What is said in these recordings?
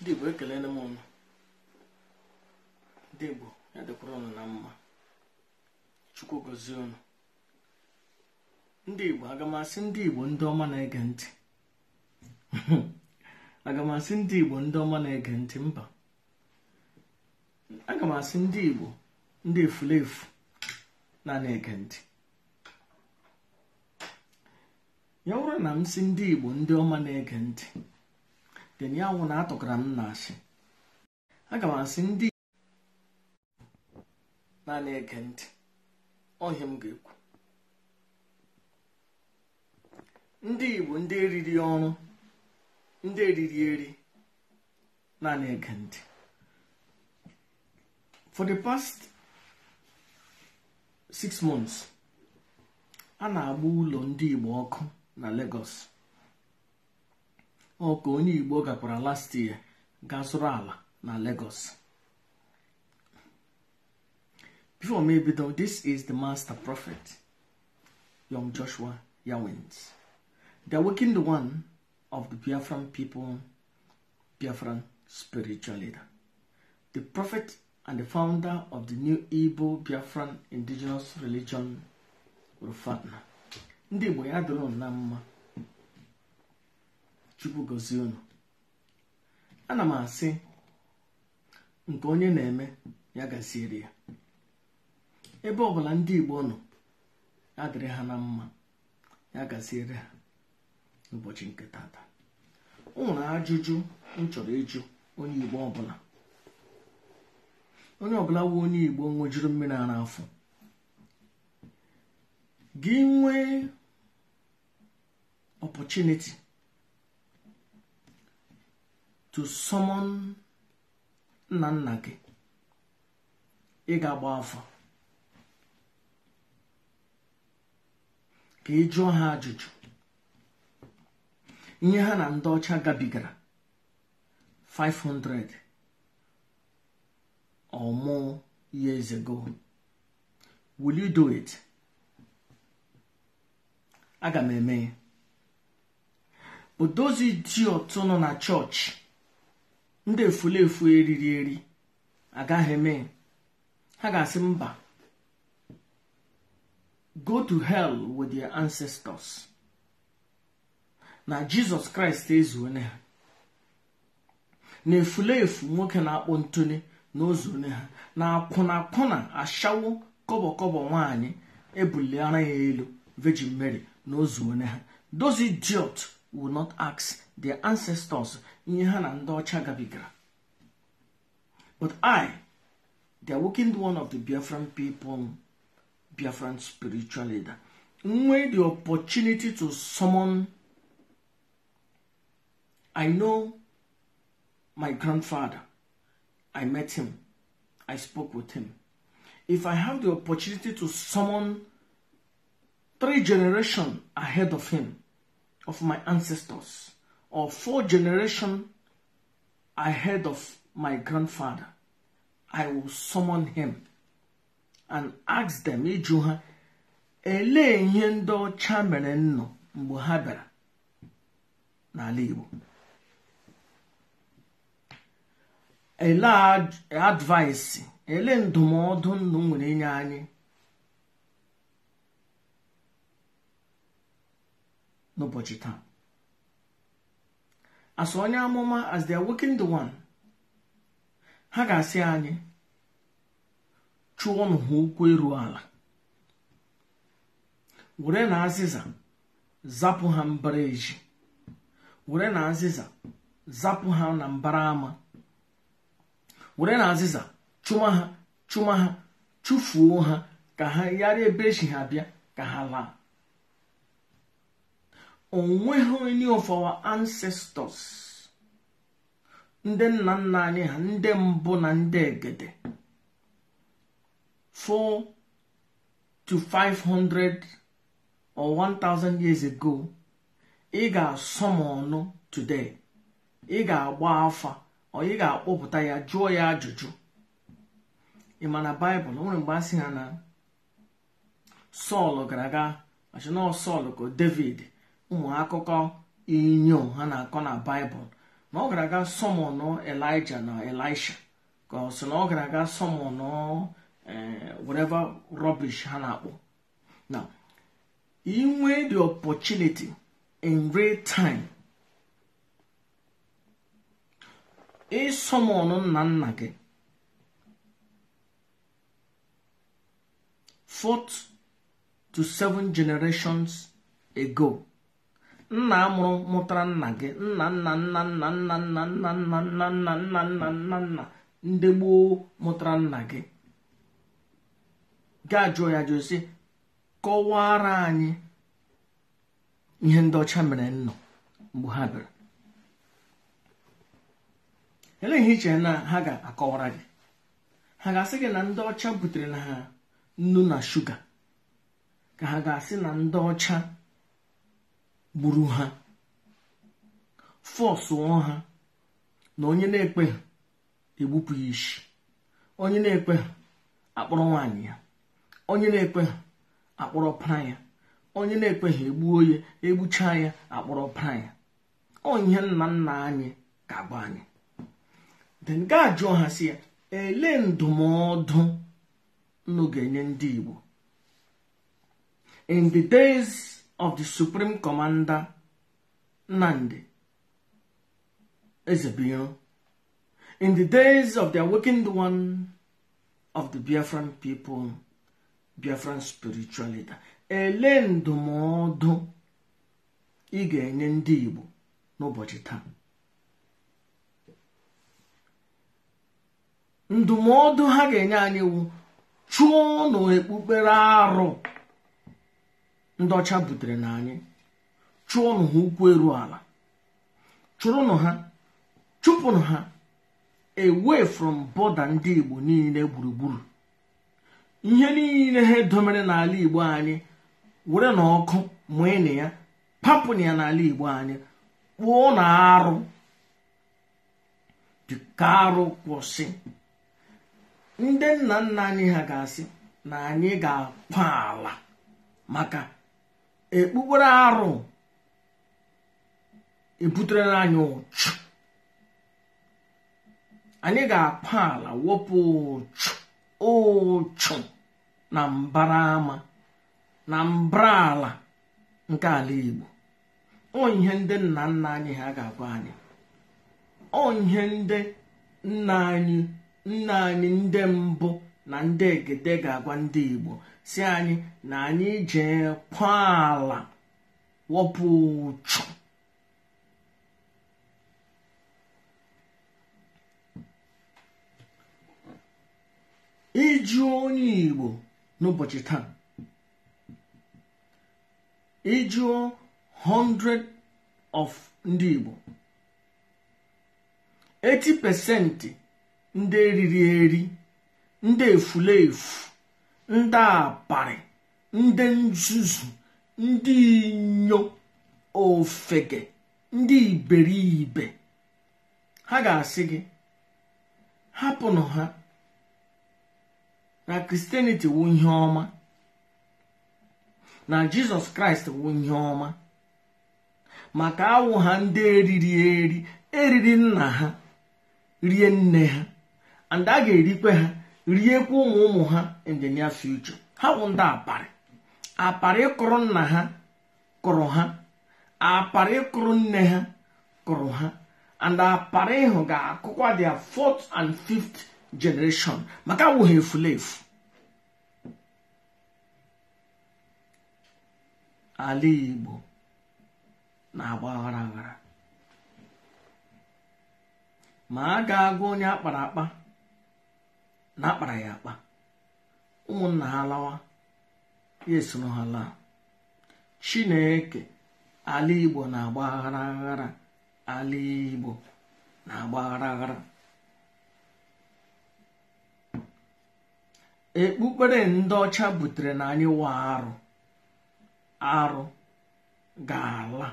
ndị igbo ekelele m ụnụ ndị igbo ya dịkwara ụnụ na mma chukwu gozie ụnụ ndị igbo agamasị ndị igbo ndị ọma na-ege ntị agamasị ndị igbo ndị ọma na-ege ntị mba aga m asị ndị igbo ndị efulefu na na-ege ntị ya wụrụ na m si ndị igbo ndị ọma na-ege ntị teni anwụ na-atọkara m na-asị aga m asị ndị naanị ege ntị ọhịa m ga-ekwu ndị Igbo ndị eriri ọrụ ndị eriri eri naanị ege ntị for the past six months a na-agba ụlọ ndị Igbo ọkụ na Lagos ọ ka onye igbo gakwara last year gaa zụrụ ala na Lagos before me bido this is the master prophet young Joshua Yawins the the one of the Biafran people Biafran spiritual leader the prophet and the founder of the new Igbo Biafran indigenous religion rufatna ndị Igbo ya na mma chukwu gozie unu ana m asị nke onye na-eme ya gaziere ya ebe ọbụla ndị igbo nọ ya dịrị ha na mma ya gaziere ha n'ụbọchị nke tata o nwere ajụjụ m chọrọ ịjụ onye igbo ọbụla onye ọbụla bụ onye igbo nwejuru mmiri ara afọ gị nwee to summon nna nna gị ị ga-agba afọ ka ị jụọ ha ajụjụ ihe ha na ndị ọcha gabigara 500 ọmụ years ago will you aga m eme ya dị those nọ na chọọchị ndị efulefu eriri eri agaghị eme ha ga-asị mba go to hell with their ancestors na jizọs kraịst ezuone ha na efulefu nwoke na-akpọ ntuni na ozuone ha na akwụna akwụna ashawo kọbọ nwanyị nwaanyị ebuliara ya elu virgin mary na ozuone ha those idiot will not ask their ancestors but i the awakened one of the biafran people biafran spiritual leader made the opportunity to summon i know my grandfather i met him i spoke with him if i have the opportunity to summon three generations ahead of him of my ancestors or four generation ahead of my grandfather, I will summon him and ask them ịjụ ha elee ihe ndị ọcha mere nnụ mgbe ha bịara n'ala Igbo ele advaịsị ele ndụmọdụ ndụ nwere inye anyị n'ụbọchị taa as onye amụma as dia are working the one ha ga-asị anyị chụọnụ ha ụkwụ eruo ala were na azịza zapụ ha mbara eji were na azịza zapụ ha na mbara ama were na azịza chụma ha chụma ha chụfuo ha ka ha yara ebe echi ha bịa ka ha laa onweghị onye of our ancestors ndị nna nna anyị ha ndị mbụ na ndị egede 4 to 500 or 1000 years ago ị ga-asọ m ọnụ today ị ga-agba afa ọ ị ga-akpọpụta ya jụọ ya ajụjụ ị ma na baịbụl nwere mgbe a sị ha na sọl gara aga machina sọl ka david ụmụ akụkọ inyom ha na-akọ na baịbụl na ọ gara aga sọmọn elija na elisha ka ọ sị na ọ gara aga sọmọn e, whatever rubbish ha na-akpọ na inwe the opportunity in real time ịsọmọn nna nna gị fourth to seven generations ago nna mụrụ mụtara nna gị nna nna nna nna nna nna nna nna nna nna nna nna nna nna ndị gboo mụtara nna gị ga ajụọ ya jụọ sị kọwara anyị ihe ndị ọcha mere nnọ mgbe ha bịara elee ihe iche na ha ga-akọwara gị ha ga-asị gị na ndị ọcha butere na ha nnu na shuga ka ha ga-asị na ndị ọcha gburu ha fọsụọ ha na onye na-ekpe egbupụ ya onye na-ekpe ha akpọrọ nwaanyị ya onye na-ekpe ha akpọrọ para ya onye na-ekpe ha egbuo ya egbuchaa ya akpọrọ para ya onye nna nna anyị ka abụ anyị den jụọ ha si ya elee ndụmọdụ nnu ga-enye ndị Igbo in of the Supreme Commander Nandi Ezebiro in the days of the awakened one of the Biafran people, Biafran spiritual leader. Ele ndụmọdụ ị ga-enye ndị Igbo n'ụbọchị taa. Ndụmọdụ ha ga-enye anyị iwu chụọ n'okpukpere arụ ndị ọcha butere na anyị chụọnụ ha ụkwụ eru ala chụrụnụ ha chụpụnụ ha away from bọda ndị igbo niile gburugburu ihe niile ha edomere n'ala igbo anyị were na ọkụ mụị na ya papụn ya n'ala igbo anyị kpụọ na arụ dịka arụ kwụsị ndị nna nna anyị ha ga-asị na anyị ga-akwa ala maka ekpukpere arụ ebutere anyị ụchụ anyị ga-akpa ala wepụ ụchụ ụchụ na mbara ama na mbara ala nke ala Igbo ọ ihe ndị nna nna anyị ha ga-agwa anyị ọ ihe ndị nna anyị nna anyị ndị mbụ na ndị egede ga-agwa ndị igbo si anyị na anyị jee kwa ala wọpụ ụchụ iju onye igbo n'ụbọchị taa ijuo 100 of ndị igbo 80 pesenti ndị eriri eri ndị efuleefu ndị aparị ndị nzuzu ndị inyo ofege ndị iberibe ha ga-asị gị hapụnụ ha na kristianity wu ihe ọma na jizọs kraịst wu ihe ọma maka awụ ha ndị eriri eri eriri nna ha rie nne ha and a ga-erikwe ha riekwa ụmụ ụmụ ha injinia the ha bụ ndị aparị aparị kụrụ nna ha kụrụ ha aparị kụrụ nne ha kụrụ ha and aparị ịhụ ga-akụkwa their fourth and fifth generation maka wụ efulefu ala Igbo na-agba aghara aghara ma a ga agwa onye akpara akpa na akpara ya akpa ụmụnna ha lawa ya esoro ha laa chineke ala igbo na-agba aghara aghara ala igbo na-agba ekpukpere ndị ọcha butere na anyị wa arụ arụ ga-ala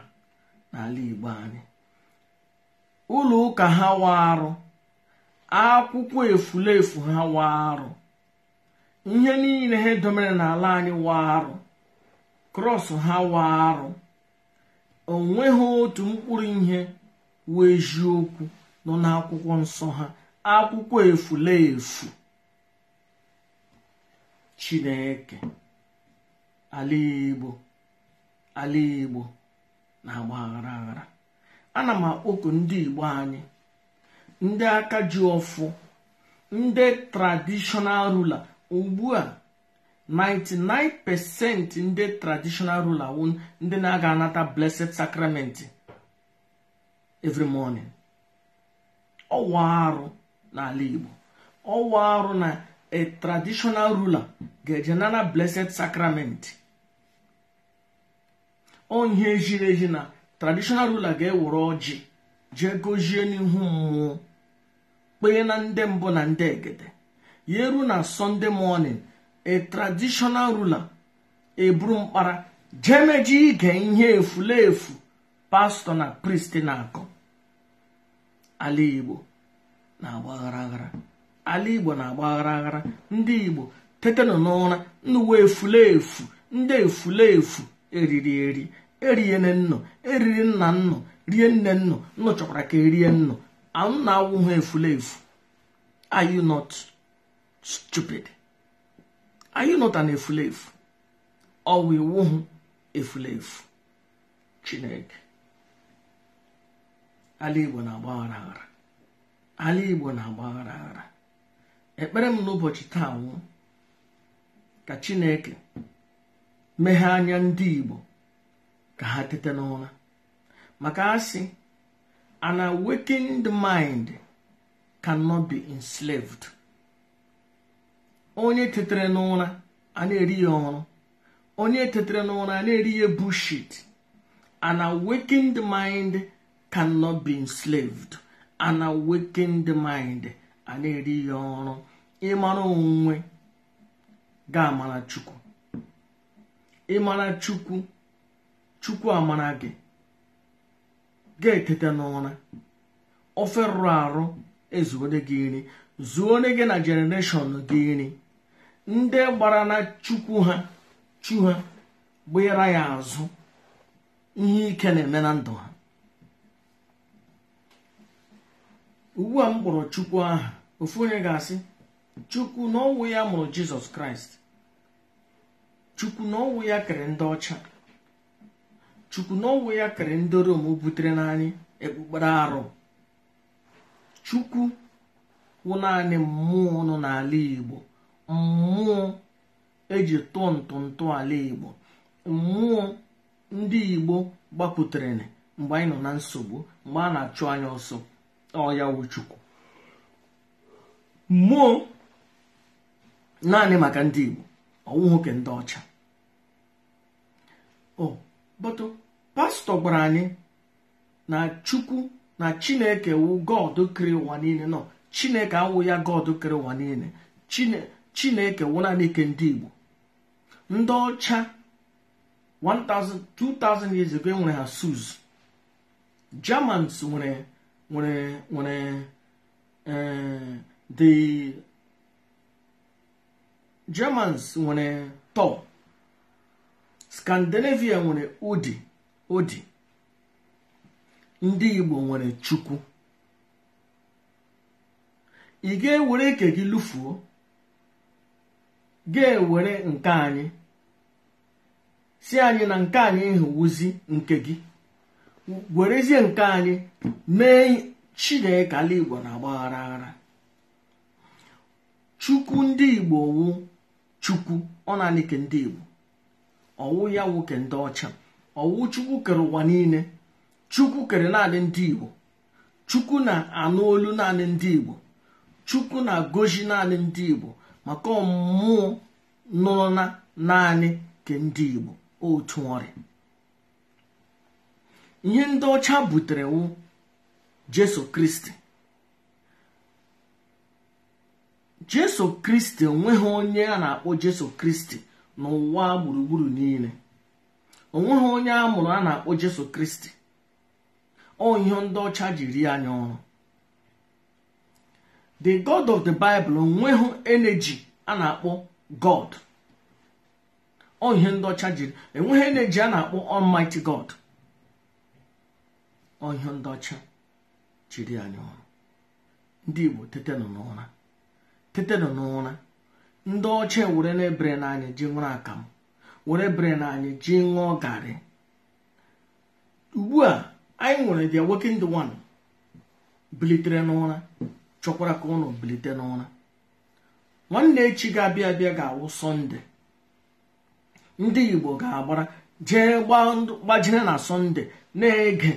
n'ala igbo anyị ụlọ ụka ha wa arụ akwụkwọ efulefu ha waa arụ ihe niile ha domere n'ala anyị wa arụ krọs ha wa arụ onweghị otu mkpụrụ ihe wee eziokwu nọ n'akwụkwọ nsọ ha akwụkwọ efulefu chineke ala igbo ala igbo na-agba aghara aghara ana m akpọku ndị igbo anyị ndị aka ji ọfụ ndị tradishọnal rula ugbu a 99% ndị tradishọnal rula wu ndị na-aga anata blessed sacrament every morning ọwa arụ n'ala Igbo ọwa arụ na a traditional ruler ga-eje nana blessed sacrament onye ezi eji na traditional rula ga-ewere ọjị jee gozie n'ihu mmụọ kpee na ndị mbụ na ndị egede ya ruo na sọnde mọnin a traditional eburu mkpara jemeji ige ihe efulefu pastọ na pristi na-akọ ala igbo na-agbaghara ala igbo na-agbaghara aghara ndị igbo tetenụ n'ụra ndị uwe efulefu ndị efu eriri eri eriene nnọ eriri nna nnọ rie nne nnọ chọkwara ka erie nnọ anwụ na-awụ ha efu are you not stupid are you not an efu ọ wụ iwu hụ efu chineke ala igbo na-agbaghara aghara ala igbo na-agbaghara aghara ekpere m n'ụbọchị taa nwụ ka chineke meghee anya ndị igbo ka ha tete n'ụra maka asị An awakened mind cannot be enslaved. Onye tetere n'ụra a na-eri ya ọhụrụ. Onye tetere n'ụra a na-eri ya bullshit. An awakened mind cannot be enslaved. An awakened mind a na-eri ya ọhụrụ. Ịmara onwe ga-amara Chukwu. Ịmara Chukwu Chukwu amara gị. ga-eteta n'ụra ofe rụrụ arụ ezuone gị zuo zuone gị na jenereshọn gị nri ndị gbara na chukwu ha chu ha ya azụ ihe ike na-eme na ndụ ha ugbu a m kpọrọ chukwu aha ofu onye ga-asị chukwu na n'ọnwụ ya mụrụ jizọs kraịst chukwu n'ọnwụ ya kere ndị ọcha chukwu na ya kere ndị rom butere n'anyị ekpukpere arụ chukwu wụ naanị mmụọ nọ n'ala igbo mmụọ eji tụọ ntụntụ ala igbo mmụọ ndị igbo gbapụtara mgbe anyị nọ na nsogbu mgbe a na-achụ anya ọsọ ọya wụ chukwu mmụọ naanị maka ndị igbo ọnwụ nwoke ndị ọcha o oh, pastọ gwara anyị na chukwu na chineke wụ god kere ụwa niile nọ chineke awụ ya god kere ụwa niile chineke wụ naanị ike ndị igbo ndị ọcha 2000 years ago e nwere ha germans nwere nwere nwere eh, nwere tọ scandinavia nwere udi o dị ndị Igbo nwere Chukwu ị ga-ewere ike gị lụfuo ga-ewere nke anyị si anyị na nke anyị hụwuzi nke gị werezie nke anyị mee Chineke ala Igbo na agbaghara aghara Chukwu ndị Igbo wu Chukwu ọ naanị ndị Igbo ọwụ ya nwoke ndị ọcha ọwụ chukwu kere ụwa niile chukwu kere naanị ndị igbo chukwu na-anụ olu naanị ndị igbo chukwu na-agozi naanị ndị igbo maka ọmụmụ nọ na naanị nke ndị igbo otu nwere. ihe ndị ọcha butere wụ jesu kristi jesu kristi onye a na-akpọ jesu kristi n'ụwa gburugburu niile onweghị onye a mụrụ a na-akpọ jesu kristi ọ ihe ndị ọcha ji rie anya ọrụ the god of the bible onweghị energy a na-akpọ god ọ ihe ndị ọcha ji enweghị energy a na-akpọ almighty god ọ ndị ọcha jiri anya ọrụ ndị igbo tetenụ n'ụra tetenụ n'ụra ndị ọcha ewere na-ebere n'anya ji nwere akamụ were bere anyị ji ṅụọ garị ugbu a anyị nwere the awakened one bilitere n'ụra chọkwara ka ụnụ bilite n'ụra nwanne echi ga-abịa abịa ga-awụ sọnde ndị igbo ga-agbara jee gbajire na sọnde na-ege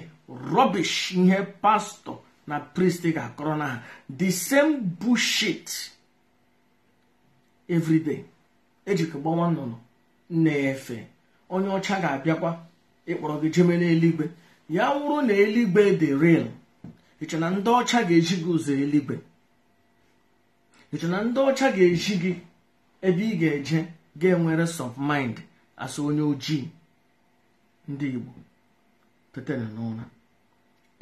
rọbish ihe pastọ na prist ga-akọrọ na ha the same bushit everyday ejikọ nnụnụ na-efe onye ọcha ga-abịakwa ịkpọrọ gị jeme n'eluigwe ya wụrụ na eluigwe dị ril iche na ndị ọcha ga-eji gị ụzọ eluigwe iche na ndị ọcha ga-eji gị ebe ị ga-eje ga-enwere sọf mind asị onye ojii ndị Igbo tetara n'ụra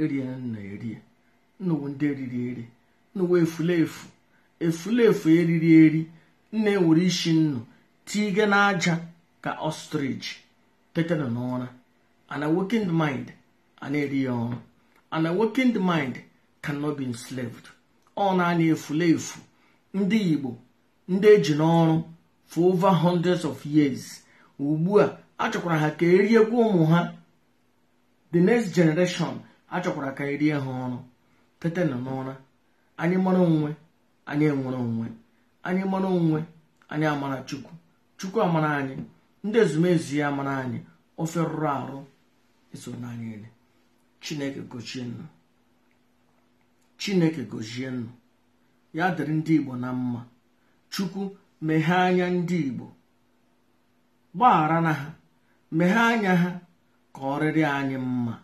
erie na erie nnuwu ndị eriri eri nnuwu efulefu efulefu eriri eri nne nwere isi nnu tiige n'aja ka ostrich teta nọ n'ụra an awakened mind ana na-eri ya a working awakened mind cannot be enslaved ọ naanị efu ndị igbo ndị eji n'ọrụ for over hundreds of years ugbu a achọkwara ha ka erie gwa ụmụ ha the next generation achọkwara ka erie ha ọrụ tete nọ n'ụra anyị mara onwe anyị enwere onwe anyị mara onwe anyị amara chukwu chukwu amara anyị ndị ezumezu ya mara anyị ofe rụrụ arụ eso n'anya ele chineke gochie nnu chineke gozie nnu ya dịrị ndị igbo na mma chukwu meghee anya ndị igbo gbaghara na ha meghee anya ha ka ọrịrị anyị mma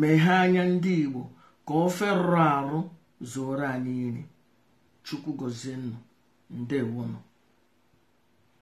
meghee anya ndị igbo ka ofe rụrụ arụ zuoro anyị iri chukwu gozie nnu ndewonụ